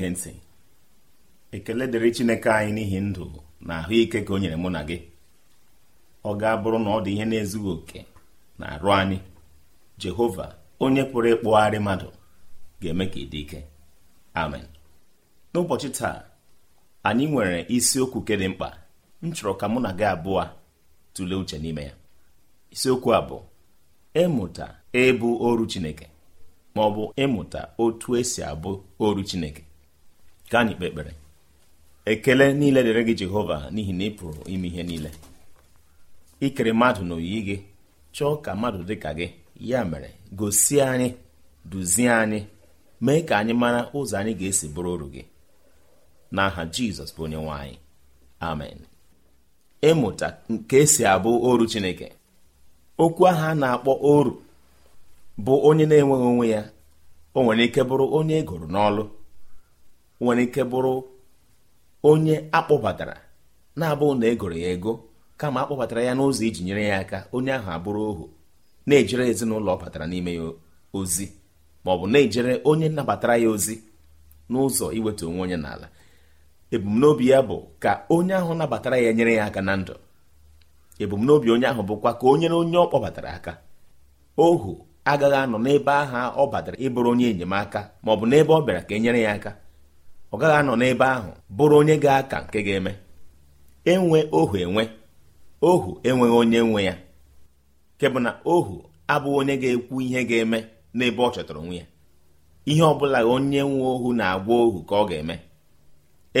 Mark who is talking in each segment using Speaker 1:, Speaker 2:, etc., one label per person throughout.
Speaker 1: na-ege ntị ekele dịrị chineke anyị n'ihi ndụ na ahụike ka o nyere mụ na gị ọ ga-abụrụ na ọ dị ihe na-ezughị oke na arụ anyị jehova onye pụrụ ịkpụgharị mmadụ ga-eme ka ị dị ike amen n'ụbọchị taa anyị nwere isiokwu ke dị mkpa m chọrọ ka mụ na gị abụọ tụlee uche n'ime ya isiokwu a bụ ịmụta ịbụ oru chineke ma ọ bụ ịmụta otu esi abụ oru chineke ka anyị kpee ekpere ekele niile dịrị gị jehova n'ihi na ị pụrụ ime ihe niile ikere mmadụ na gị chọọ ka mmadụ dị ka gị ya mere gosi anyị duzie anyị mee ka anyị mara ụzọ anyị ga-esi bụrụ oru gị n'aha jizọs bụ onye nwe anyị amen ịmụta nke esi abụ oru chineke okwu ahụ a na-akpọ oru bụ onye na-enweghị onwe ya o nwere ike bụrụ onye egoro n'ọlụ nwere ike bụrụ onye akpọbatara na-abụghị na egoro ya ego kama akpọbatara ya n'ụzọ iji nyere ya aka onye ahụ abụrụ ohu na-ejere ezinụlọ ọ batara n'ime ya ozi ma ọ bụ na-ejere onye nabatara ya ozi n'ụzọ iweta onwe onye n'ala ebumnobi ya bụ ka onye ahụ nabatara ya nyere ya aka na ndụ ebumnobi onye ahụ bụkwa ka onyere onye ọ kpọbatara aka ohu agaghị anọ n'ebe aha ọ batara ịbụrụ onye enyemaka ma ọ bụ n'ebe ọ bịara ka e nyere ya aka ọ gaghị anọ n'ebe ahụ bụrụ onye ga-aka nke ga-eme enwe ohu enwe ohu enweghị onye nwe ya nke bụ na ohu abụghị onye ga-ekwu ihe ga-eme n'ebe ọ chọtara onwe ya ihe ọ bụla onye nwe ohu na-agwa ohu ka ọ ga-eme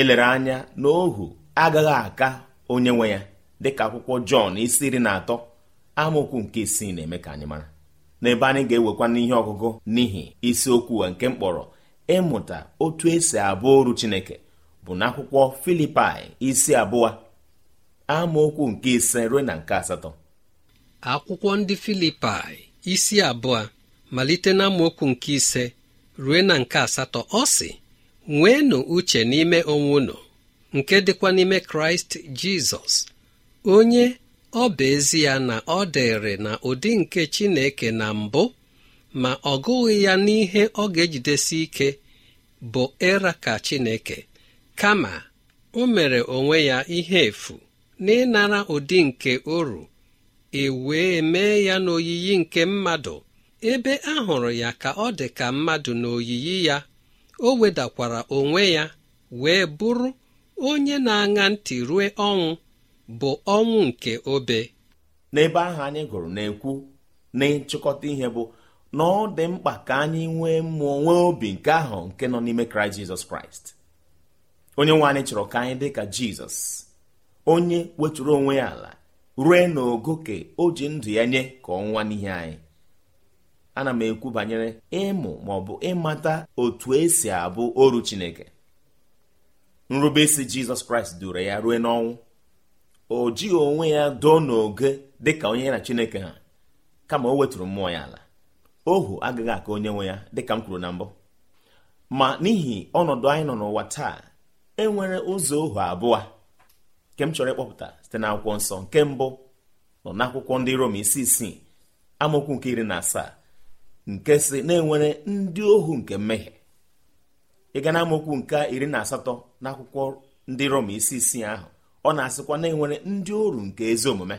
Speaker 1: elere anya na ohu agaghị aka onye nwe ya dịka akwụkwọ Jọn isi iri na atọ amaokwu nke isii na-eme ka anyị mara n'ebe anyị ga-ewekwa n'ihe ọgụgụ n'ihi isiokwu nke mkpọrọ ịmụta otu esi abụ oru Chineke bụ n'akwụkwọ Filipaị isi abụọ amaokwu nke ise ruo na nke asatọ
Speaker 2: akwụkwọ ndị Filipaị isi abụọ malite na nke ise ruo na nke asatọ ọ sị nweenụ uche n'ime onwe unu nke dịkwa n'ime kraịst jizọs onye ọ bụ ya na ọ dịrị na ụdị nke chineke na mbụ ma ọ gụghị ya n'ihe ọ ga-ejidesi ike bụ ịra ka Chineke kama o mere onwe ya ihe efu n'ịnara ụdị nke oru e wee mee ya n'oyiyi nke mmadụ ebe a hụrụ ya ka ọ dị ka mmadụ n'oyiyi ya o wedakwara onwe ya wee bụrụ onye na-aṅa ntị
Speaker 3: rue ọnwụ bụ ọnwụ nke obe n'ebe ahụ anyị gụrụ na-ekwu
Speaker 1: na ihe bụ na ọ dị mkpa ka anyị nwee mmụọ nwee obi nke ahụ nke nọ n'ime kraịst jizọs kraịst onye nwe anyị chọrọ ka anyị dị ka jizọs onye weturu onwe ya ala rue n'ogo ka o ji ndụ ya nye ka ọnwa n'ihe anyị ana m ekwu banyere ịmụ ma ọ bụ ịmata otu esi abụ oru chineke nrubeisi jizọs kraịst duru ya rue n'ọnwụ o jighị onwe ya doo n'oge dị ka onye na chineke ha kama o weturu mmụọ ya ala ohu agaghị aka onye nwe ya dịka m kwuru na mbụ ma n'ihi ọnọdụ anyị nọ n'ụwa taa enwere ụzọ ohu abụọ nke m chọrọ ịkpọpụta site n'akwụkwọ nsọ nke mbụ nọ n'akwụkwọ ndị Rom isi isii amokwu nke iri na asaa nke si na enwere ndị ohu nke mmehie ịga na amokwu nke iri na asatọ n'akwụkwọ ndị Rom isi isii ahụ ọ na-asịkwa na enwere ndị oru nke ezi omume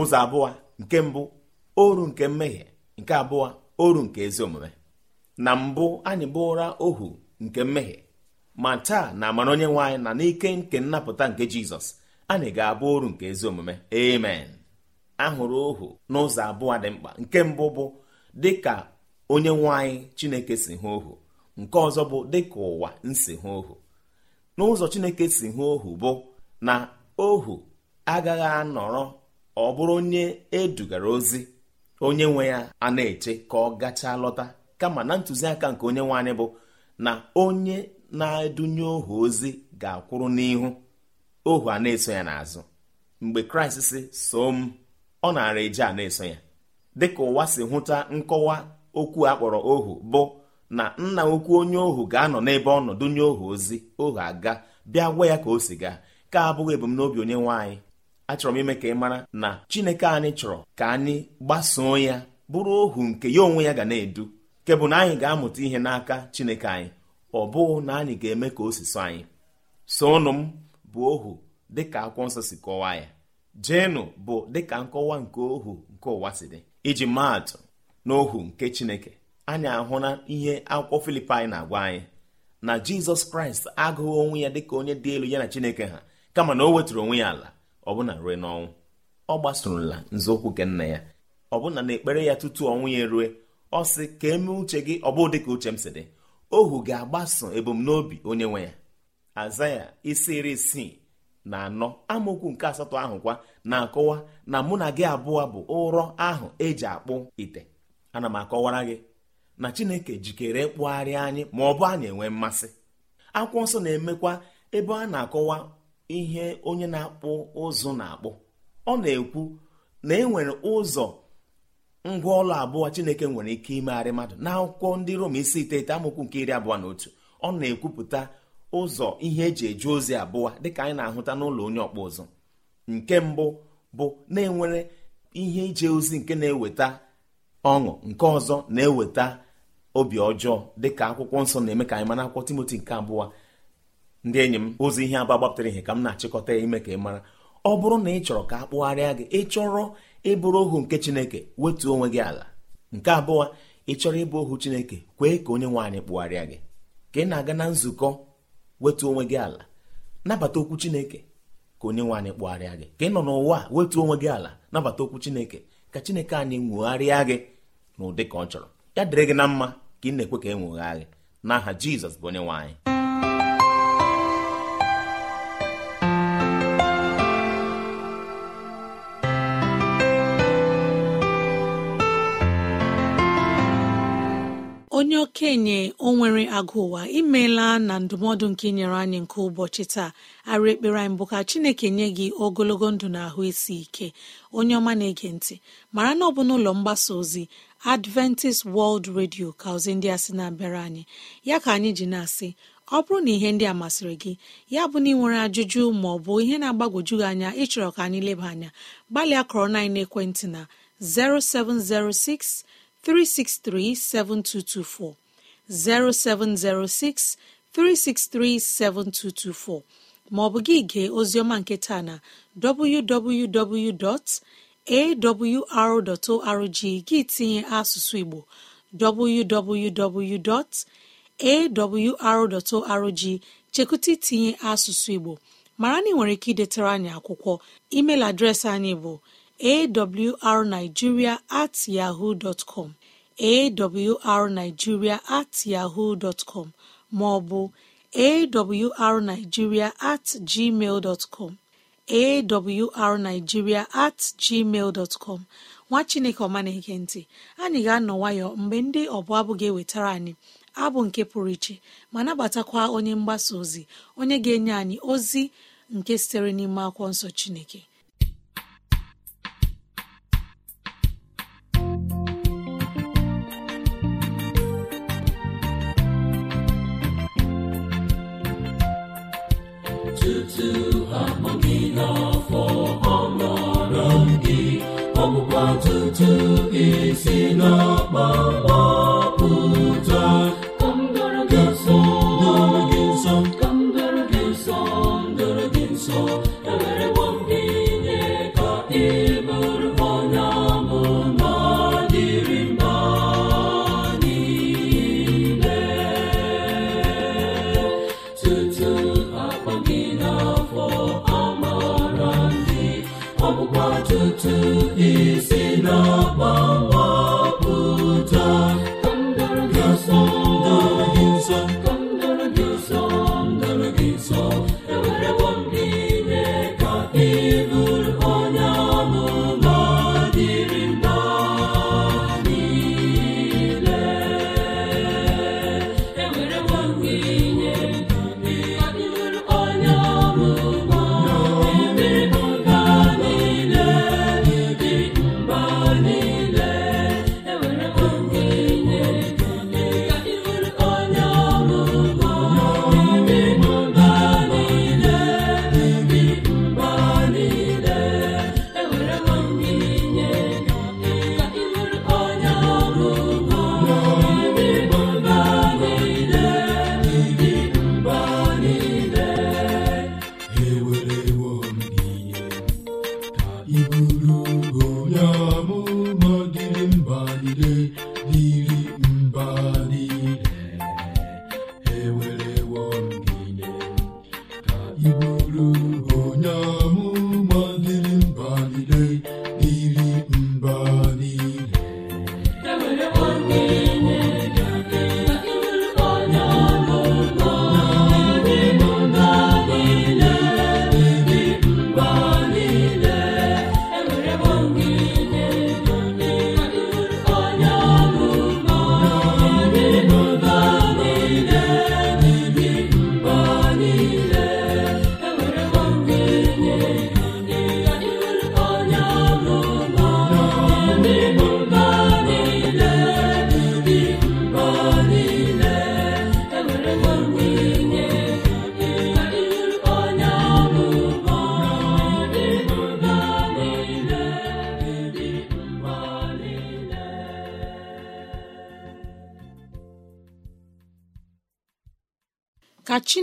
Speaker 1: ụzọ abụọ nke mbụ oru nke mmehie nke abụọ oru nke ezi omume na mbụ anyị bụra ohu nke mmehie ma taa na amara onye nwe anyị na n'ike nke nnapụta nke jizọs anyị ga-abụ oru nke ezi omume amen ahụrụ ohu n'ụzọ abụọ dị mkpa nke mbụ bụ dịka onye nwanyị chineke si hụ ohu nke ọzọ bụ dịka ụwa nsi hụ ohu n'ụzọ chineke si hụ ohu bụ na ohu agaghị anọrọ ọ bụrụ onye edugara ozi onye nwe ya a na-eche ka ọ gachaa lọta kama na ntụziaka nke onye nwe anyị bụ na onye na-edunye ohu ozi ga-akwụrụ n'ihu ohu a na-eso ya n'azụ mgbe kraịst si soo m ọ nara eje a na-eso ya dịka ụwa si hụta nkọwa okwu a kpọrọ ohu bụ na nna okwu onye ohu ga-anọ n'ebe ọ nọ dunye ohu ozi ohu aga bịa gwa ya ka o si gaa ka abụghị ebumnobi onye nwe achọrọ m ime ka ị mara na chineke anyị chọrọ ka anyị gbasoo ya bụrụ ohu nke ya onwe ya ga na-edu nke bụ na anyị ga-amụta ihe n'aka chineke anyị ọ bụghị na anyị ga-eme ka o si so anyị sonụ m bụ ohu dịka akwụkwọ nsọ si kọwaa ya jenụ bụ dịka nkọwa nke ohu nke ụwa si dị iji maatụ na ohu nke chineke anyị ahụla ihe akwụkwọ filipaị na-agwa anyị na jizọs kraịst agụghị onwe ya dị ka onye dị elu ya na chineke ha kama na o wetụrụ onwe ya ala ọbụna rue n'ọnwụ ọ gbasorola nzọụkwụ nke nna ya ọbụna na ekpere ya tutu ọnwụ ya erue ọ sị ka emee uche gị ọbụ dị ka uche m si dị ohu ga-agbaso ebumnobi onye nwe ya aza ya isi iri isii na anọ amaokwu nke asatọ ahụ kwa na-akọwa na mụ na gị abụọ bụ ụrọ ahụ eji akpụ ite ana m akọwara gị na chineke jikere ịkpụgharị anyị ma ọ bụ anyị enwe mmasị akwụkwọ nsọ na-emekwa ebe a na-akọwa ihe onye na-akpụ ụzụ na-akpụ ọ na-ekwu na e nwere ụzọ ngwa ọla abụọ chineke nwere ike imegharị mmadụ n'akwụkwọ ndị rom isi iteghete amokwu nke iri abụọ na otu ọ na-ekwupụta ụzọ ihe eji eje ozi abụọ dịka anyị na-ahụta n'ụlọ onye ọkpụ ụzụ nke mbụ bụ na-enwere ihe ije ozi nke na-eweta ọṅụ nke ọzọ na-eweta obi ọjọọ dịka akwụkwọ nsọ na-eme ka anyị mana akwụkwọ timoti nke abụọ ndị enyi m ozi ihe aba gbapụtara ihe ka m na-achịkọta ya ime ka ị mara ọ bụrụ na ị chọrọ ka a kpụgharịa gị ị chọrọ ịbụrụ ohu nke chineke wetuo onwe gị ala nke abụọ ị chọrọ ịbụ ohu chineke kwee ka onye nwe anyị kpụgharịa gị ka ị na-aga na nzukọ wetuo onwe gị ala nabata okwu chineke ka onye nwe anyị kpụgharịa gị ka ị nọ n'ụwa wetuo onwe gị ala nabata okwu chineke ka chineke anyị nwegharịa gị n'ụdị ka ọ chọrọ ya dịrị gị na mma ka ị na-ekwe ka e nwegha gị n'aha jizọs bụ onye nwe anyị
Speaker 2: onye okenye o nwere imeela na ndụmọdụ nke inyere anyị nke ụbọchị taa arụ ekpere anyị bụ ka chineke nye gị ogologo ndụ na ahụ isi ike onye ọma na-ege ntị mara na ọ bụ n'ụlọ mgbasa ozi adventist world radio ka ozi ndị a sị na-abịara anyị ya ka anyị ji na-asị ọ bụrụ na ihe ndị a masịrị gị ya bụ na ị nwere ajụjụ ma ọ bụ ihe na-agbagwoju gị anya ịchọrọ ka anyị leba anya gbalịa kọrọ na ekwentị na 0706 363-7224, 0706 363-7224 maọbụ gị gee ozioma nke taa na www.awr.org gị tinye asụsụ Igbo www.awr.org chekụta itinye asụsụ Igbo mara na ị nwere ike idetara anyị akwụkwọ email adreesị anyị bụ awrnigeria at yahoo dọtkọm awrnigeria at yahoo dọtkọm maọbụ awrnigeria at gmail dọtkọm awrnigeria at gmail dotcom nwa chineke ọma na ntị anyị ga-anọ nwayọ mgbe ndị ọbụ abụ ga-ewetara anyị abụ nke pụrụ iche ma nabatakwa onye mgbasa ozi onye ga-enye anyị ozi nke sitere n'ime akwụkwọ nsọ chineke
Speaker 4: otuto aha n'afọ ọmara gị ọgbụgba tutu isi n'akpa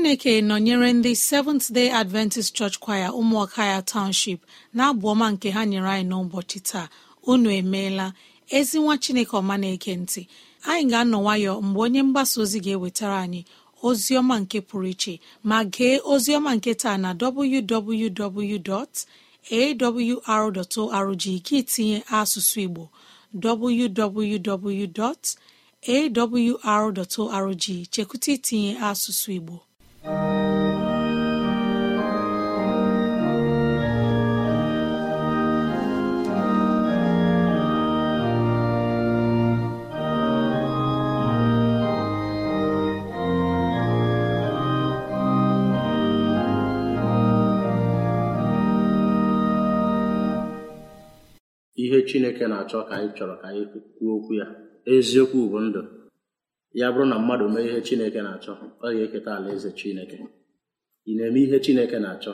Speaker 2: chineke nọnyere ndị seventh day adventist church kwaya ụmụọka ya township na-abụ ọma nke ha nyere anyị n'ụbọchị taa unu emeela ezi nwa chineke ọma na-eke ntị anyị ga-anọ nwayọ mgbe onye mgbasa ozi ga-ewetara anyị ozi ọma nke pụrụ iche ma gee ozi ọma nke taa na www.awr.org gị tinye asụsụ igbo www.awr.org chekwụta itinye asụsụ igbo
Speaker 3: chineke na-achọ ka anyị chọrọ ka anyị kwuo okwu ya eziokwu bụ ndụ ya bụrụ na mmadụ mee ihe chineke na-achọ ọ ga-eketa alaeze chineke ị na-eme ihe chineke na-achọ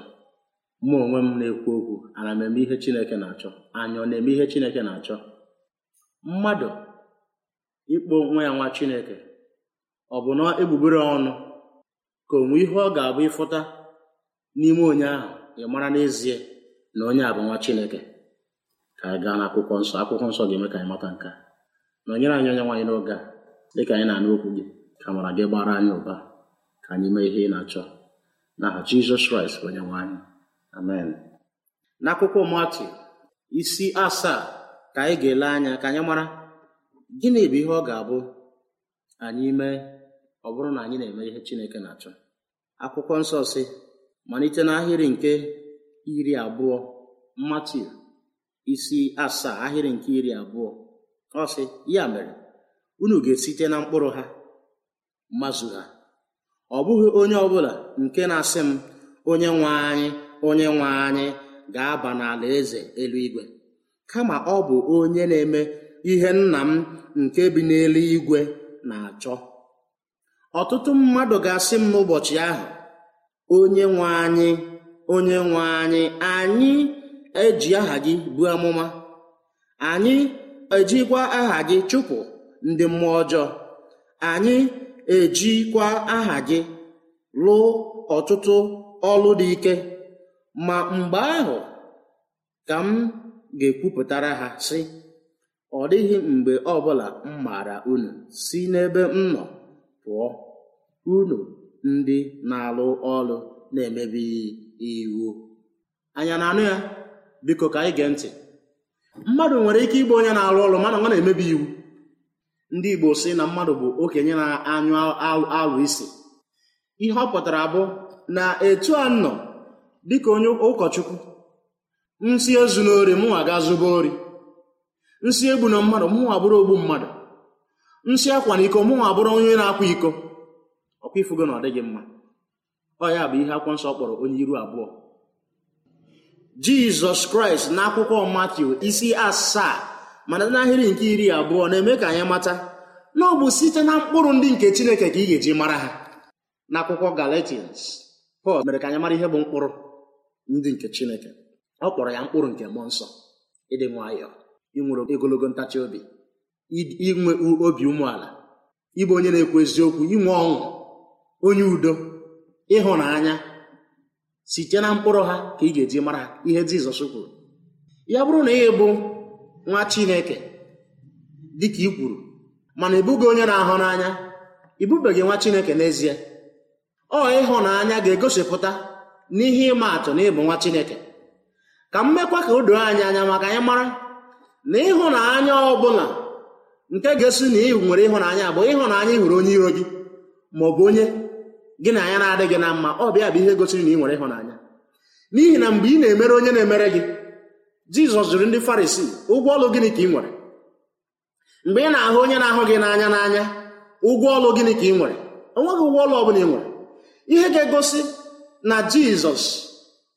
Speaker 3: mụ onwe m na-ekwu okwu ana m eme ihe chineke na-achọ anya ọ na-eme ihe chineke na-achọ mmadụ ịkpọ nwa ya nwa chineke ọ bụ na egbugbere ọnụ ka onwe ihe ọ ga-abụ ịfụta n'ime onye ahụ ị mara n'ezie na onye a bụ nwa chineke ka anyị gaa n'akwụkwọ nsọ akwụkwọ nsọ ga-eme ka anyị mata nke a nọnyere anyị onye nwaanyị n'oge a dịka anyị na-anụ okwu gị ka mara gị gbara anyị ụba ka anyị mee ihe ị na-achọ n'aha Jizọs Kraịst onye nwaanyị amen n'akwụkwọ Matiu isi asaa ka anyị ga-ele anya ka anyị mara gịnị bụ ihe ọ ga-abụ anyị mee ọ bụrụ na anyị na-eme ihe Chineke na-achọ akwụkwọ nsọ si malite n'ahịrị nke iri abụọ Matiu isi asaa ahịrị nke iri abụọ ọsị ya mere unu ga-esite na mkpụrụ ha mazụ ha ọ bụghị onye ọbụla nke na-asị m onye nwe anyị onye nwe anyị ga-aba n'ala eze eluigwe kama ọ bụ onye na-eme ihe nna m nke bi n'eluigwe na-achọ ọtụtụ mmadụ ga-asị m n'ụbọchị ahụ onye nwe anyị onye nwe anyị anyị eji aha gị buo amụma anyị ejikwa aha gị chụpụ ndị mmụọ ọjọọ anyị ejikwa aha gị lụọ ọtụtụ ọlụ dị ike ma mgbe ahụ ka m ga-ekwupụtara ha sị ọ dịghị mgbe ọbụla m maara unu si n'ebe m nọ pụọ unu ndị na-alụ ọlụ na-emebi iwu anya na-anụ ya biko ka anyị gee ntị mmadụ nwere ike ịgba onye na-arụ ọrụ mana ọ na-emebi iwu ndị igbo sị na mmadụ bụ okenye na-anyụ alụ isi ihe ọ pụtara bụ na etu a nọ dịka onye ụkọchukwu nsị ezu n'ori mụnwa ga zụba ori nsị egbu na mmadụ mụnwa bụrụ ogbu mmadụ nsị akwa na iko mụnwa bụrụ onye na-akwa iko ọkwa ifugo na ọ dịghị mma ọ ya bụ ihe akwụkwọ nsọ kpọrọ onye iru abụọ jizọs kraịst n'akwụkwọ matthew isi asaa mana n'ahịrị nke iri abụọ na-eme ka anyị mata na ọ bụ site na mkpụrụ ndị nke chineke ka ị ga-eji mara ha n'akwụkwọ galatians pọl mere ka anyị mara ihe bụ mkpụrụ ndị nke chineke ọ kpọrọ ya mkpụrụ nke mmụọ nsọ ịdị nwayọọ inwere ogologo ntachi obi inwe obi umeala ịbụ onye na-ekwu eziokwu inwe ọṅụ onye udo ịhụnanya site na mkpụrụ ha ka ị ga-eji mara ha ihe Jizọs kwuru ya bụrụ na ị bụ nwa Chineke dịka ị kwuru mana ịbụghị onye na-ahụ n'anya ịbụbeghị nwa Chineke n'ezie ọ ịhụnanya ga-egosipụta n'ihe ịma atụ na ịbụ nwa Chineke ka m mekwa ka o doo anyị anya maka anyị mara na ịhụnanya ọbụla nke ga-esi na ị nwere ịhụnanya bụ ịhụnanya ị hụrụ onye iro gị ma ọ bụ onye gị na ya na-adị gị na mma ọ bịa bụ ihe gosiri na ị nwere ịhụnanya n'ihi na mgbe ị na-emere onye na-emere gị jizọs jụrụ ndị farisi ụgwọ ọlụ gịnị ka ị nwere mgbe ị na-ahụ onye na-ahụ gị n'anya n'anya ụgwọ ọlụ gịnị ka ị nwere onweghị ụgwọ ọlụ ọ bụla ị nwere ihe ga-egosi na jizọs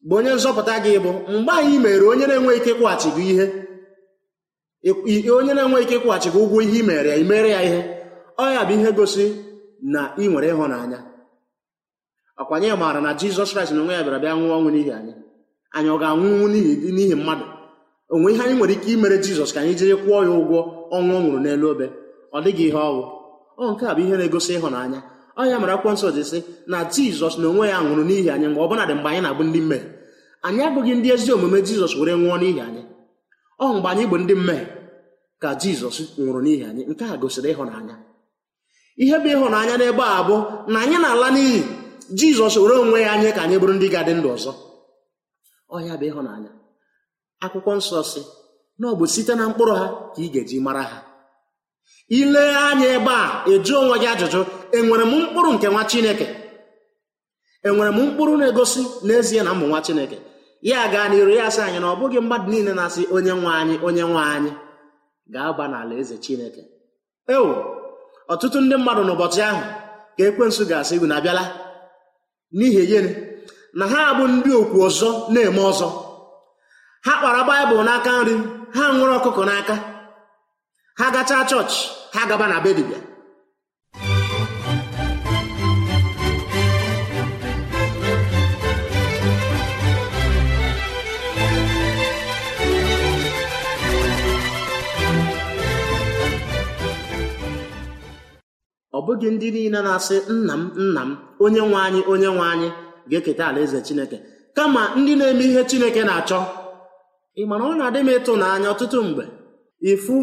Speaker 3: bụ onye nzọpụta gị bụ mgbe anyị mere onye na enweghị ike kwụghachi gị ihe onye na enweghị ike kwụghachi gị ụgwọ ihe i mere ya imere ya ihe ọ ya bụ ihe gosi na ị nwere ịhụnanya ọkwanye anyị maara na jizọs kraịst na onwe ya bịara bịa nwụọ ọnwụ n'ihi anyị anyị ọ ga-anwụnwu n'ihi mmadụ onwe ihe anyị nwere ike imere jizọs ka anyị jiri kwụọ ya ụgwọ ọnwụ ọ nwụrụ n'elu obe ọ dịghị ihe ọwụ ọ nke a bụ ihe na-egosi ịhụnanya ọ ya mere akwụkwọ nsọ ji sị na jizọs na onwe ya nwụrụ n'ihi anyị mgbe ọbụla dị mgbe anyị na-abụ ndị mmehie anyị abụghị ndị ezi omume jizọs were nwụọ n'ihi anyị ọ mgbe anyị bụ ndị mmehie ka jizọs nwụrụ n'ihi anyị nke a gosiri ịhụnanya ihe bụ ịhụnanya n'ebe a bụ na anyị na-ala n'iyi jizọs were onwe ya anyị ka anyị bụrụ ndị ga-adị ndụ ọzọ ọhịa bụ ịhụnanya akwụkwọ nsọ si na ọ bụ site na mkpụrụ ha ka ị ga-eji mara ha ile anya ebe a eju onwe gị ajụjụ enwere m mkpụrụ nke nwa chineke enwere m mkpụrụ na-egosi n'ezie na mbụ nwa chineke ya gaa n'iru ya sị anyị na ọ bụghị mmadụ niile na-asị onye nwe anyị onye nwe anyị Gaa aba n'ala eze chineke ewo ọtụtụ ndị mmadụ n'ụbọchị ahụ ka ekwensu ga-asị unu abịala n'ihi gịnị na ha abụ ndị okwu ọzọ na-eme ọzọ ha kpara baịbụl n'aka nri ha nwere ọkụkọ n'aka ha gachaa chọọchị ha gaba na be ọ bụghị ndị niile na-asị nna m nna m onye nwe anyị onye nwe anyị ga-eketa alaeze chineke kama ndị na-eme ihe chineke na-achọ ị mana ọ na-adị m ịtụnanya ọtụtụ mgbe ịfụ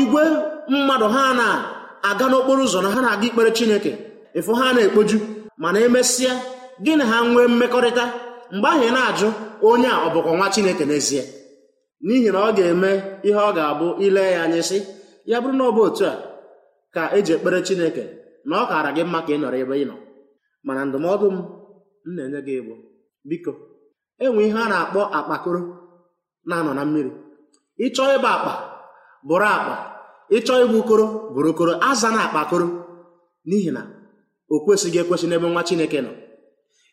Speaker 3: igwe mmadụ ha na-aga n'okporo ụzọ na ha na-aga ikpere chineke ịfụ ha na-ekpoju mana emesịa gị na ha nwee mmekọrịta mgbe ahụ ị na-ajụ onye a ọ bụkwa nwa chineke n'ezie n'ihi na ọ ga-eme ihe ọ ga-abụ ile ya anya sị ya bụrụ na ọ bụ otu a ka eji ekpere chineke na ọ kaara gị mma ka ị nọrọ ebe ị nọ mana ndụmọdụ m m na-enye gị ịbụ, biko enwe ihe a na-akpọ akpakoro na-anọ na mmiri ịchọ ịbụ akpa bụrụ akpa ịchọ ịbụ koro bụrụ koro aza na akpakoro n'ihi na o kwesịghị ekwesị n'ebe nwa chineke nọ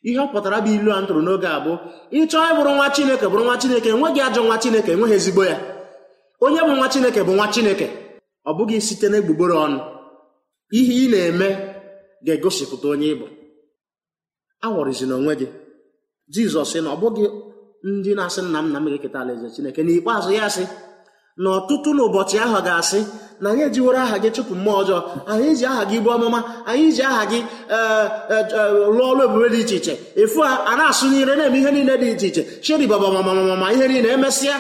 Speaker 3: ihe ọ pụtara bụ ilu a ntụrụ n'oge a bụ ịchọọ ịbụrụ nwa chineke bụrụ nwa chineke enweghị ajọ nwa chineke enweghị ezigbo ya onye bụ nwa chineke bụ nwa chineke ọ bụghị site n'egbugbere ọnụ ihe ị na-eme ga-egosipụta onye ịbụ aghọrịzina onwe gị jizọs na ọ bụghị ndị na-asị nna m na m ga-eketa alaeze chineke ikpeazụ ya sị na ọtụtụ n'ụbọchị ahụ ga-asị na anyị ejiwere aha gị chụpụ mmụọ ọjọọ anyị ji aha gị bụ ọmụma anyị ji aha gị e, e, e, lụọ ọrụ ebube dị iche iche ịfụ a na-asụ n'ire na-eme ihe niile dị iche iche cheri babamamamama ihe niile emesịa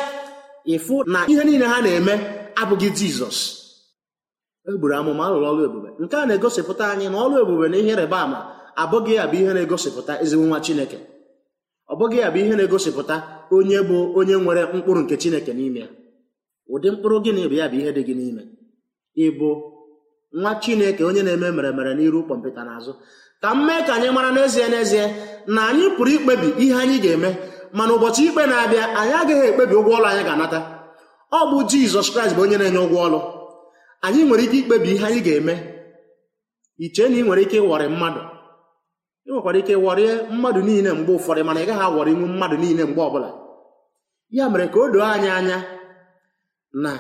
Speaker 3: ịfụ na ihe niile ha na-eme abụghị jizọs egburu amụma alụrụ ọrụ ebube nke a na-egosipụta anyị na ọrụ ebube na ihe ịrịba ama abụghị ya bụ ihe na-egosipụta ezigbo nwa chineke ọ bụghị ya bụ ihe na-egosipụta onye bụ onye nwere mkpụrụ nke chineke n'ime ya ụdị mkpụrụ gị na ya bụ ihe dị gị n'ime ịbụ nwa chineke onye na-eme meremere n'iru kpọmpụta n'azụ ka m mee ka anyị mara n'ezie n'ezie na anyị pụrụ ikpebi ihe anyị ga-eme mana ụbọchị ikpe na-abịa anyị agaghị ekpebi ụgwọ ọlụ anyị ga-anata ọ bụ jizọs kraịst bụ onye na-enye ụgwọ ọlụ anyị nwere ike ikpebi ihe anyị ga-eme iche na ị nwere ike ịwọrị mmadụ ị nwekwara ike ịwọrịe mmadụ niile mgbe ụfọdụ mana ị gaghị awọrị nwu mmadụ niile mgbe ọbụla ya mere ka o doo anyị anya na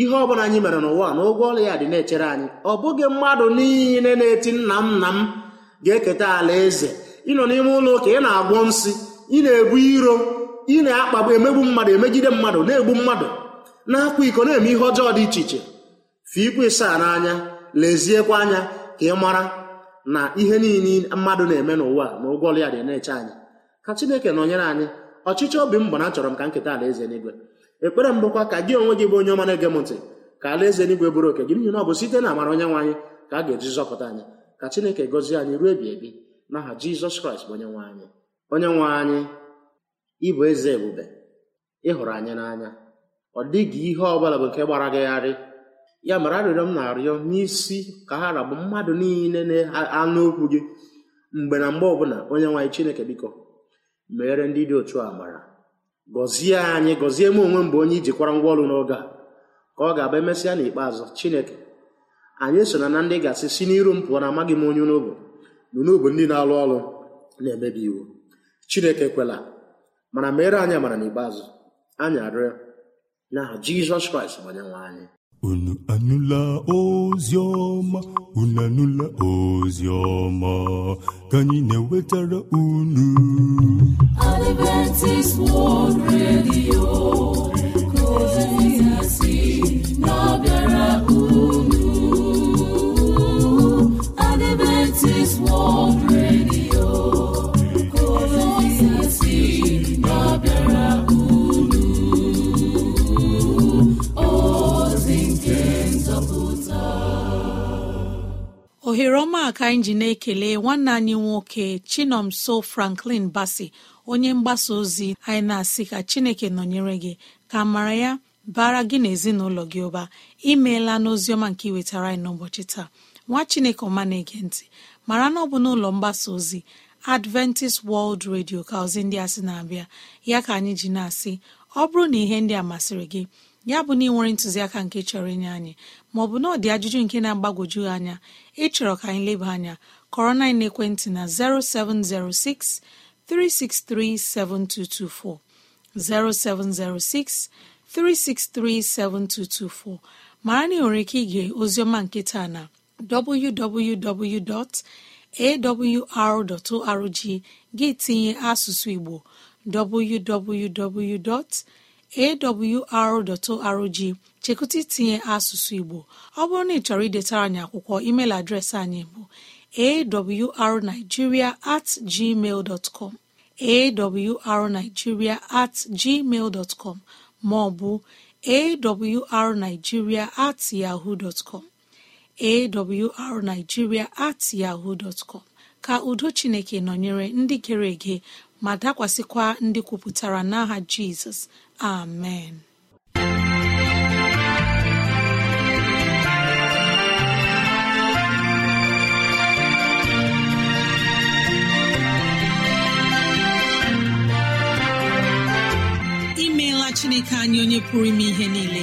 Speaker 3: ihe ọbụla anyị mere n'ụwa na ụgwọ ọla ya dị na-echere anyị ọ bụghị mmadụ niile na-eti nna m nna m ga-eketa ala eze ịnọ n'ime ụlọ ụka ị na-agwọ nsị ị na-ebu iro ị na-akpagbu emegbu mmadụ emegide mmadụ na-egbu mmadụ na-akwa iko na-eme ihe ọjọọ dị iche iche fụ igwe saa n'anya leziekwa anya ka ị mara na ihe niile mmadụ na-eme n'ụwa na ụgwọọrụ ya dị na-eche anyị ka chineke nọnyere anyị ọchịchị obi m bụ na achọrọ m ka nketa alaeze n'igwe ekpere m bụkwa ka gị onwe gị bụ onye ọma na-ege m ntị ka alaeze n'igwe bụrụ oke gị n'ihi na ọ bụ site na amara onye nwe anyị ka a ga-eji zọpụta anyị ka chineke gọzie anyị ruo ebi ebi n'aha jizọs kraịst bụ onye nwe anyị onye nwe anyị ịbụ eze ebube ịhụrụ anyị n'anya ọ dịghị ihe ọ bụla bụ nke gbara gagharị ya mara arịrịọ m na-arịọ n'isi ka ha rabụ mmadụ niile na-anụ okwu gị mgbe na mgbe ọbụla onye nwaanyị chineke biko meere ndị dị otu mara gọzie anyị gọzie m onwe mgbe onye ijikwara ngwa ọrụ n'oge a ka ọ ga-aba emesịa n'ikpeazụ chineke anyị so na na ndị gasị si n'iru m pụọ na amaghị m onye n'obo n'obo ndị na-alụ ọrụ na-emebi iwu chineke kwela mana meere anyị amara n'ikpeazụ anyị arịọ n'aha jizọs kraịst bụ anyị
Speaker 1: unu anụla ozi ọma unu anụla ozi ọma ka anyị na-ewetara unu
Speaker 4: Adventist World Radio
Speaker 2: ohere ọma ka anyị ji na-ekele nwanne anyị nwoke chinomso franklin basi onye mgbasa ozi anyị na-asị ka chineke nọnyere gị ka mara ya bara gị na ezinụlọ gị ụba imeela n'oziọma nke iwetara anyị n'ụbọchị taa nwa chineke ọma na-ege ntị mara na ọ bụ n'ụlọ mgbasa ozi adventist world radio ka ndị a na-abịa ya ka anyị ji na-asị ọ bụrụ na ihe ndị a masịrị gị ya bụ na ị nwere ntụziaka nke chọrọ inye anyị maọbụ na ọ dị ajụjụ nke na-agbagwoju anya ịchọrọ ka anyị leba anya kọrọ na na 0706 363 7224 0706 363 7224 mara na ị nwere ike ige ozioma nkịta na www.awr.org gị tinye asụsụ Igbo www. awr.org chekụta itinye asụsụ Igbo ọ bụrụ na ị chọrọ idetara anyị akwụkwọ email adreesị anyị bụ awrnigeria at gmail com awrnigeria at gmail com maọbụ ọ awrnigeria at yahoo com awrnigeria at yahoo dot com ka udo Chineke nọnyere ndị gere ege ma dakwasịkwa ndị kwupụtara n'aha jizọs amen imeela chineke anyị onye pụrụ ime ihe niile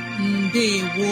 Speaker 2: Ndewo